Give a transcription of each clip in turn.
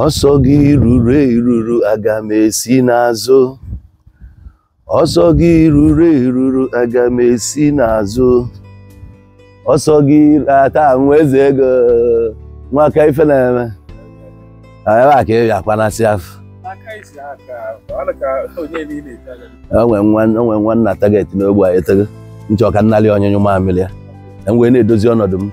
ọsọ gị ruru eruru aga m esi n'azụ ọsọ gị ruru eruru aga m esi n'azụ ọsọ gị taa nwa eze ego nwaka ife na-eme ebe a ka ị ga-akpanasị afọ onwe nwa nna tageti n'ogbe a etego nchọ ka nnali ọnyụnyụ mamịrị ya enwee na-edozi ọnọdụ m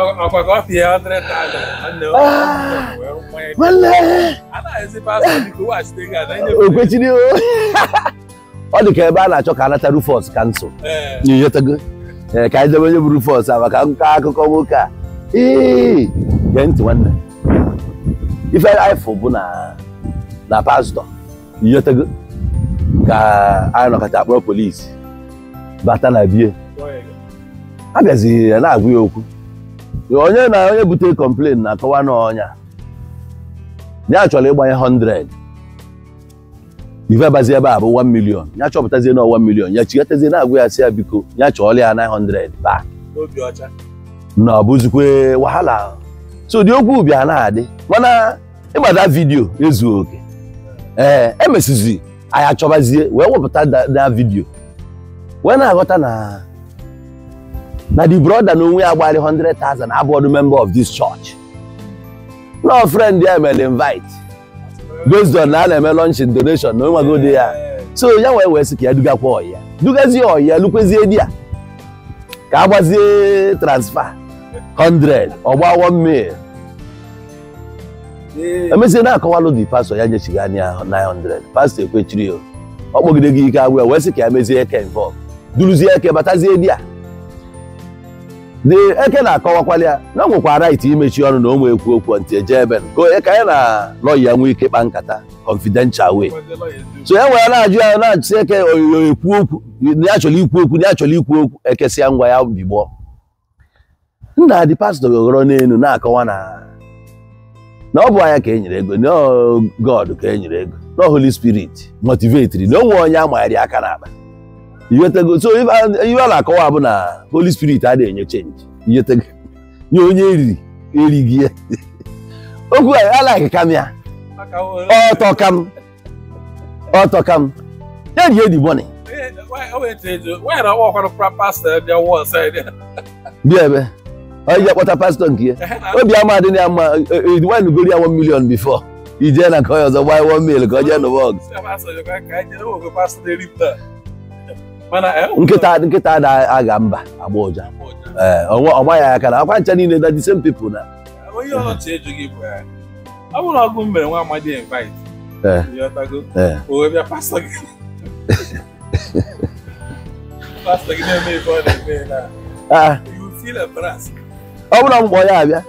ọ̀pọ̀pọ̀ fi hundred thousand ọ̀nà ọ̀pọ̀ ẹ̀ mọ́lẹ̀. aláìsí pásítọ̀ ní kò wá sí tẹ́gà náà. ògbé tí ni o. ọ dị ka ebe a na-achọ ka anata Rufus kansụl nyochatago ka anyị debe onye bụ Rufus a maka nkọ akụkọ nwoke a ee gee ntị nwanne ife ifụ bụ na na pastọ nyochatago ka anyị nọkọta akpọrọ polisi bata na bie a bịazi na-agwa ya okwu onye na onye bute complain na-akọwa n'ọnya ya chọrọ ịgbanye 100 ife abazi ebe a bụ 1 million ya chọpụtazie na 1 million ya chigatazie na-agwa ya si ya biko ya chọọla ya 900 back na ọ wahala so ụdị okwu bịa na-adị mana ịgbada vidiyo ezughị oke ee emesizi anyị achọbazie wee wepụta da vidiyo wee na-aghọta na na the brother na onwe ya gbalị 100,000 abụọdụ member of this church no friend ya mere invite based on na a na-eme lunch donation na onweghị ụdị ya so ya wee wee sị ka ya dugakwa ọya dugazie ọya lukwezie di ya ka a gbazie transfer 100 ọgba 1 mil emezie na-akọwalụ di pastọ ya nyechighị anya 900 pastọ ekwechiri ọ kpọgide gị ike agwụ ya wee sị ka ya mezie eke involve duruzie eke batazie di ya the eke na-akọwakwala ya na nwekwa right imechi ọnụ na ụmụ ekwu okwu ntị eje ebe onye ka ya na lọya nwee ike kpa nkata confidential way so ya e nwere na-ajụ ya na-achụsi eke oyo ekwu okwu na chọrọ ikwu okwu na achọrọ ikwu okwu ekesịa ngwa ya bigbo nna dị pastọ gogoro n'elu na-akọwa na na ọ bụ anya ka e nyere ego na God ka e nyere ego na Holy Spirit motivetiri na onwe onye amaghara aka n'akpa iwetago so if ife a na-akọwa bụ na holy spirit adịghị enye change iwetago nye onye eriri erighị ya okwu a alaghị kam ya ọtọ kam ọtọ kam ya ji edi bọni bịa ebe onye ji akpọta pastọ nke ya obi ama adị ya mma wine gori ya 1 million before ije na nke onye ọzọ gbaa 1 mil ka ọ jee n'ụwa ọgụ Eh, oh, nkịta nkịta na aga mba agba ụja ọgba ya aka na akwa ncha niile na the same people na eh, onye ọchị ejughị bụ ya eh, ọ bụrụ ọgụ mere nwa amadi invite owe bịa pastọ gị pastọ gị na-eme ife ọ na-eme na ah. you feel a embarrassed ọ bụrụ mkpọ ya abịa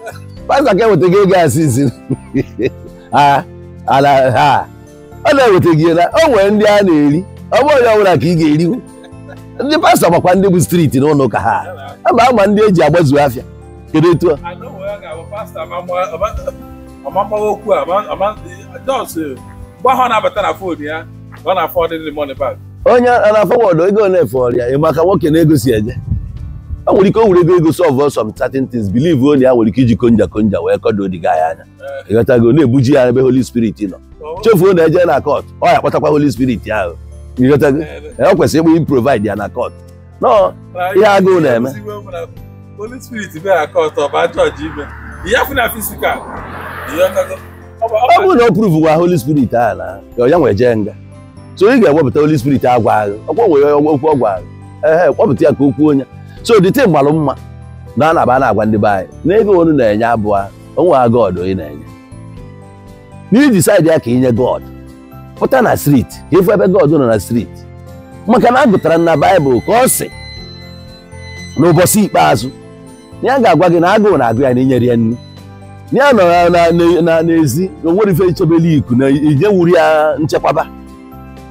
pastọ ka eweta gị ego asị isi ala ha ọ na-eweta gị na o nwere ndị a na-eri ọ bụrụ onye ọ bụla ka ị ga-eriwu ndị pastọ makwa ndị bụ striti na ụlọ ụka ha ama ama ndị eji agbazu afịa kedu etu a onye a na-afọ wọdụ ego na-efe ọrịa maka nwoke na-egosi eje o nwere ike o were ego ego solve sọm certain tins believe onye ya nwere ike iji konja konja wee kọdo odiga ya anya ịghọtago na-ebuji ya ebe holi spirit nọ oh. chefuo na eje na kọt ọ ya kpọtakwa holi spirit ahụ o kwesịrị ịbụ improvide ya na court nọ ihe agụụ na-eme Holy Spirit bịa na court ọba jọji ime ya fụ na fisikal ọ bụrụ na ọ pruvu gwa Holy Spirit a na ya nwee jee nga so ị ga-ewepụta Holy Spirit agwa agha ọkwa nwere okwu ọ gwara ehe kpọpụta ya ka okwu onye so dịte mgbalụ mma na a na-aba na-agwa ndị be anyị na ego onu na-enye abụọ onwe ha God onye na-enye n'iji saịdị ya ka inye God pụta na striti efu ebe God nọ na striti maka na a gụtara na baịbụl ka ọ sị ụbọchị ikpeazụ ya ga-agwa gị na agụụ na-agụ ya na inyere ya nri ya nọ na n'ezi onwere ife ichebele iku na ije wuri ya nchekwaba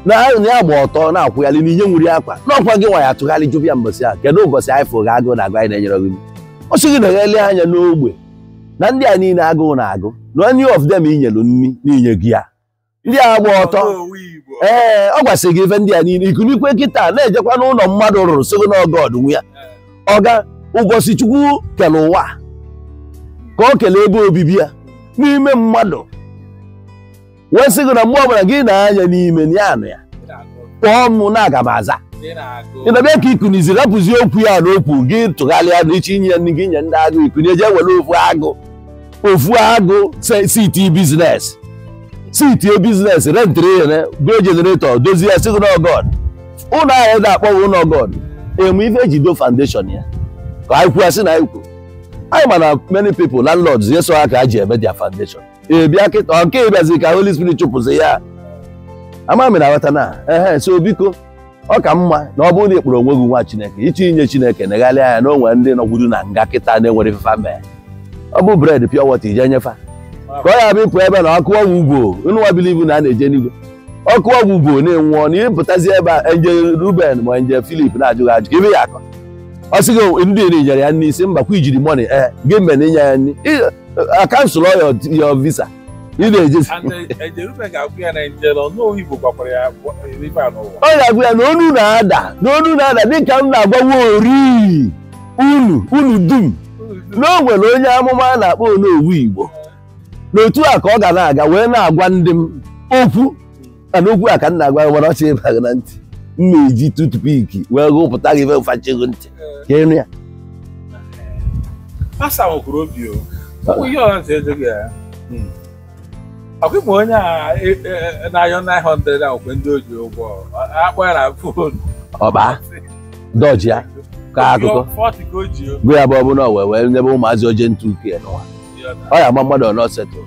na ya gba ọtọ na-akwụghalị na inye nwuri akwa na ọkwa gị nwa ya atụgharị jụbụ ya mbọsị a kedu ụbọchị anyị ga agụụ na-agụ anyị na-enyere gị ọ sị gị na eghele anya n'ogbe na ndị a niile agụụ na-agụ na onye of them inyelu nri na gị ya ndị a gba ọtọ ee ọ gwasịrị gị ife ndị a niile ikunikwe kịta na-ejekwa n'ụlọ mmadụ rụrụ sogo n'ọgọd nwe ya ọga ụbọchị kele ụwa ka o kele ebe obibi ya n'ime mmadụ wee sị gị na mgbe ọbụla gị na-anya n'ime ya anụ ya kpọọ m na aga m aza ịnabịa ka ikuniziri apụzi okwu ya n'okwu gị tụgharịa n'iche inye gị nye ndị agụ ikuni eje were ofu agụ ofu agụ siti bizinesi. si tie biznes rentịrị ya eh, gụọ jeneretọ dozie ya sigoro oh ọgọd ụlọ ahụ ga akpọwa ụlọ ọgọd oh emu ife eji do foundation ya ka anyị kwuo asị na anyị kwuo anyị ma na many people landlords yeso ha ka a ji eme dia foundation ebia kịta nke ịbịazi ka holy spirit chụpụzi ya amami na aghọta na ehe so biko ọ ka mma na ọ bụrụ na ịkpọrọ onwe gị nwa chineke ịchọ inye chineke negharịa anya na onwere ndị nọgwuru na nga kịta na-enwere ifefa mee ọ bụ bred pịọ wọta ije nyefa ka ọ ya bịpụ ịpụ ebe na ọkụ ọgwụ ugwo nwa bilivu na a na-eje n'igwe ọkụ ọgwụ ugwo na-enwụọ na ịpụtazi ebe a nje Ruben ma nje Filip na-ajụghị ajụ ka ibe ya akọ ọ sị gị ndị iri nyere ya nri isi mbakwa ijiri mọni ee eh, gị mgbe na inye ya nri a kansụl ya visa ị na-ejezi uh, uh, ọ ga-agụ ya na onu na-ada na onu na-ada dịka m na-agbawa ori unu unu dum na o nwere onye amụma a na-akpọ onowu Igbo n'otu a ka ọ ga na-aga wee na-agwa ndị m okwu mana okwu a ka m na-agwa gị mana ọchị ịbaghị na ntị m na-eji piki wee gụpụta gị chego ntị ka ịnụ ya o fon e, e, e, ọba dọji ya ka akụkọ gụ ya bụ ọbụla wee wee nyebe ụmụazị oje ntụ ọ ya ama mmadụ ọnọ setụl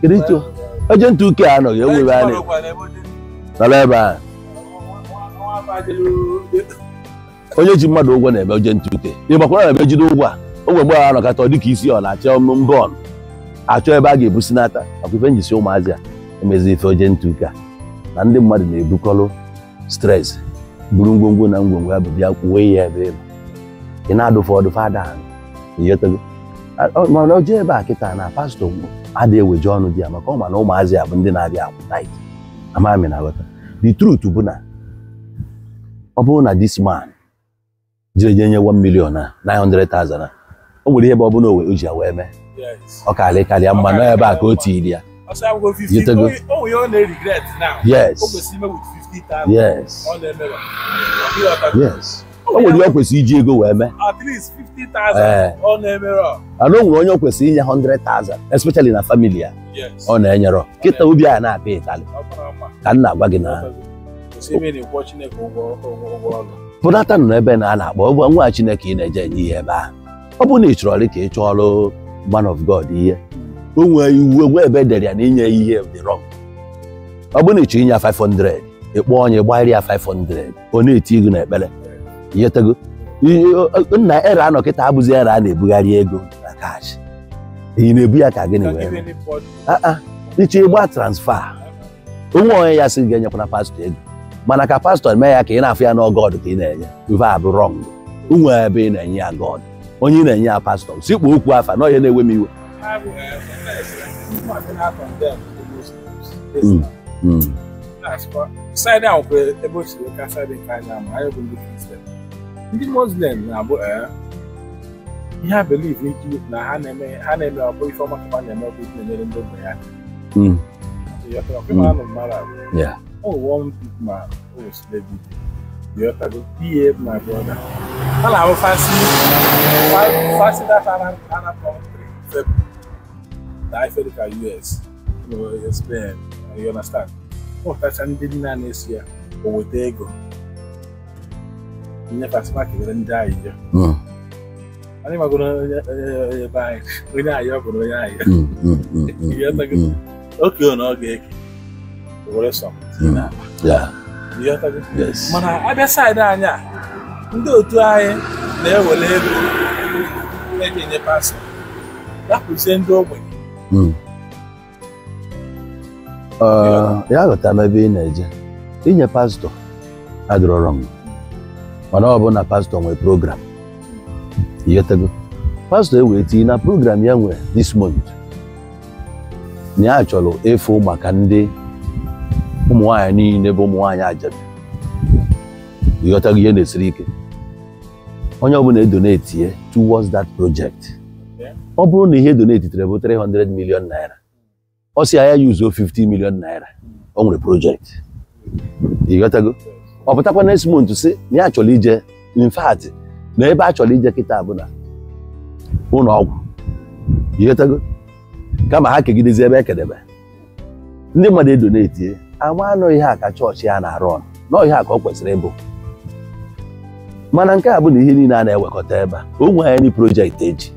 kirito eje ntụ uke e a anọghị ewu ebe a nọrọ ebe a onye ji mmadụ ụgwọ na-ebe oje ntụ uke ịgbakwara na ebe jide ụgwọ a ogwe mgbe a nọkata ọ dịka isi ọ na-achọ mba achọ ebe a ga-ebusi n'ata akwa ife njisi ụmụazị a emezi ife oje ntụ uke a na ndị mmadụ na ebukọrụ stres buru ngwongwo na ngwongwo ya bụ bịa kwuwe ya ebe ị na ada ahụ ma o jee ebe a kịta na pastọ adịghị eweje ọnụ di ya maka ọ ma na ụmụazị a bụ ndị na-abịa akwụ ike amami na aghọta the truth bụ na ọ bụrụ na this man jire je nye 1 million na 900,000 o nwere ihe bụ ọbụla o ji ya wee mee ọ karịa mma na ebe a ka o tiri ya yes yes o nwere kwesịrị iji ego wee mee ana eh. o nwere onye kwesịrị inye 100,000 especially na famili ya ọ na-enyerọ kịta obi a na-apịa ịtalị ka nna na-agwa gị na nọ n'ebe na a na-akpọ ụgwọ nwa Chineke ị na-eje enye ihe ebe ahụ ọ bụrụ na ị chọrọ ka ị chọọ ọrụ man of God ihe o nwee iwu egwe ebe e dere ya na inye ihe dị ọ bụrụ na ị chọrọ inye ya 500 ị kpọọ onye gbarịa ya 500 ọ na-eti gị ekpere inyetego nna ere anọ kịta abụzi ere a na-ebugharị ego na kash ị na-ebu ya ka gịnị wee ah, ah. iche ịgba transfa onwe onye ya sị ga-enyekwana pastọ ego mana ka pastọ mee ya ka ị na-afụ ya n'ọgọd ka ị na-enye ife abụ rọng onwe ebe ị na-enye ya god onye ị na-enye ya pastọ sikpu okwu afa na onye na-ewe m iwe hmm. Hmm. Hmm. side ahụ bụ ebe o siri ka side nke anyị ama anyị bụ ndị kristian ndị muslim na-abụ eh, ihe a believe na ha na-eme ha na-eme ọbụ ife ọma ka na-eme ọbụ ife na-enyere ndị ogbenye hmm. aka anụ mmadụ ọwụwọ ma osilebe yọtago ihe ma brọda a fasi fasi data arab country febụ na ife dịka spain you understand ụtacha ndị nna na-esi ya o weta ego nye ka ekele ndị anyị anyị magoro ebe anyị onye ọ bụrụ na ọ mana anyị a ndị otu anyị na-ewere ego na-enye ndị ya ghọtara ebe ị na-eje inye pastọ mana ọ bụ na pastọ nwee program ighọtago pastọ ewee tinye na program ya nwere this month na ya chọrọ efu maka ndị ụmụnwaanyị niile bụ ụmụnwaanyị ajadu ịghọtago ihe na-esiri ike onye ọbụla edonetie towards that project ọ bụrụ na ihe donetitere bụ 300 million naira ọ si ya ya yuzuo 50 million naira ọ hmm. nwere project ịghọtago ọ pụtakwa next si na ya chọrọ ije in na ebe a chọrọ ije kịta bụ na ụlọ ọgwụ ihetago kama ha kegidezi ebe ekedebe ndị mmadụ edoneti ama anọghị ha ka chọọchị ya na-arụ ọnụ n'ọhị ha ka ọ kwesịrị ịbụ mana nke a bụ na ihe niile a na-ewekọta ebe a o nwee anyị projekti eji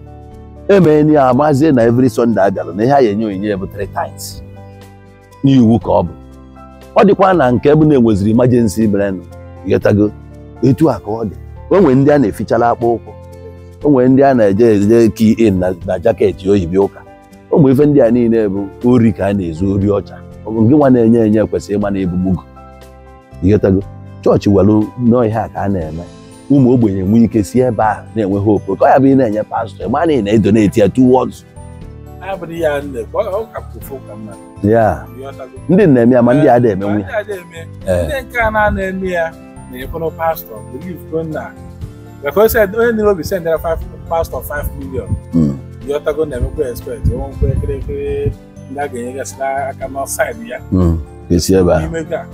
emee ya amazie na every Sọnde abịara na ihe a ya enye onyinye bụ three times n'iwu ka ọ bụ ọ dịkwa na nke bụ na-enweziri imajensi brenụ ghetago etu a ka ọ dị o nwere ndị a na-efichala akpa ụkwụ o nwere ndị a na-eje eje ki in na jaketị oyibi ụka o ife ndị a niile bụ ori ka a na-ezu ori ọcha nke nwa na-enye enye kwesịrị ịma na ebugbugo ghetago chọọchị welụ a ka a na-eme ụmụ ogbenye nwee ike si ebe a na-enwe hope ka ọ ya bụ ị na-enye pastọ ị a na ị na-edoneti ya two words ya ndị na-eme ya ma ndị a da-eme nwe ya onye nile obi sendara pastọ 5 million yọtago hmm. na-emekwa expect onwe nkwe kịrịkịrị ndị a ga-enyegasịra aka n'ọsaịdị ya hmm.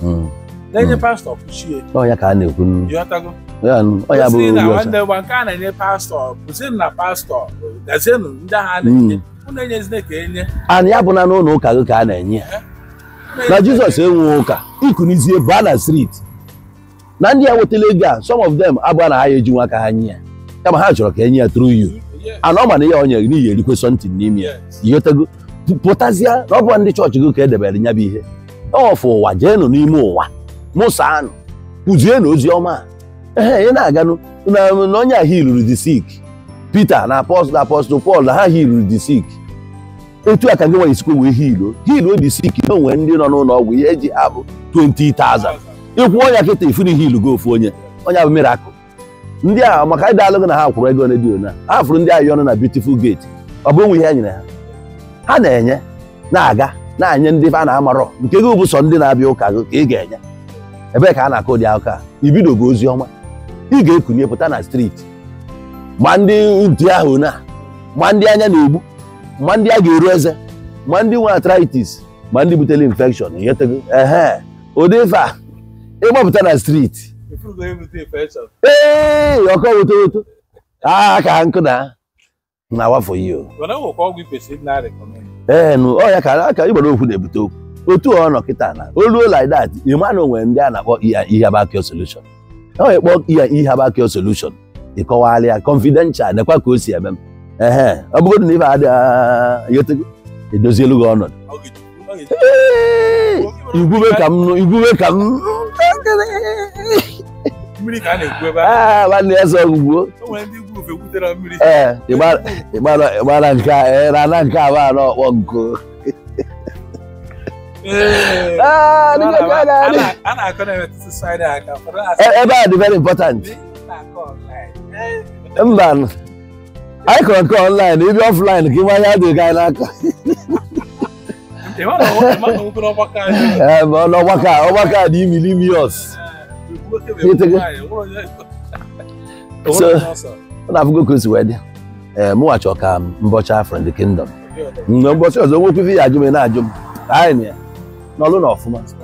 hmm. na-enye pastọ kpuchie ọnya ka a na-ekwu yọtago ọnya bụ nke a na-enye pastọ kụzienụ na pastọ gazienụ ndị agha na-enye ana ya bụ na n'ụlọ ụka gị ka a na-enye ya na jizọs enweghị ụka ikunizie baa na street na ndị a nwetala ego a some of them abụọ na ha ya nwa aka ha nye ya kama ha chọrọ ka enye ya through yu ana ọ mana ihe onye gị n'ihi erikwe something n'ime ya ihotego pụtazie na ọ bụ ndị chọọchị gị ka edebere nya bụ ihe ọfụ ụwa jeenụ n'ime ụwa mụsaanụ kụzienụ ozi ọma ee ị na-aganụ na onye ahụ iluru the sik Pita na apọstụl apọstụl Pọl na ha hiru dị sik otu a ka gị nwere isikwe wee hilo Hiilu dị sik na onwere ndị nọ n'ụlọ ọgwụ ihe ji abụ 20,000 ịkwụ ọnya kịta ifuni hilu gị ofu onye onye abụ akụ ndị a maka ịda alụgụ na ha kwụrụ ego redio na ha fụrụ ndị ahịa ọnụ na beautiful gate ọ bụ onwe ihe e nyere ha ha na-enye na-aga na-enye ndị a na-amarọ nke gị bụ sọ ndị na-abịa ụka gị ka ị ga-enye ebee ka a na-akụ ụdị akụka ibidogo ozi ọma ị ga-ekunye pụta na streeti ma ndị ntị ahụ na ma ndị anya na-egbu ma ndị a ga-eru eze ma ndị nwe arthritis ma ndị butere infection ehe ụdị ife a ịgbapụta na streeti ee ọkọ woto woto aa ka ha nkụda, na na wafọ yi o ee ọ ya ka aka ịgbara okwu na-ebute okwu otu ọ nọ kịta na olu like that onwere ndị a na-akpọ e ihabakio e solution ọ ya kpọọ e ihabakio solushon ịkọwalị ya confidential nekwa ka o si eme m ehe ọ bụrụ na ibe adịghị edozielu gị ọnọdụ igwube ka m igwube ka m nwanne ya sọ gwugwuo ee ịgbara nke rana nke abụ anọ ọkpọ nko ebe a dị very important mba anyị kọrọ nke ọnlaịn ibi ọflaịn ka ịmanye adịghị anyị n'aka n'ọgbakọ a ọgbakọ a dị imilimios so na afụgo ka o si wee dị mụwachi ka mbọchị afọ ndị kingdom mgbe mbọchị ọzọ nwekwu ife ya ajụ na-ajụ m anyị na ya n'ọlụ na ọfụma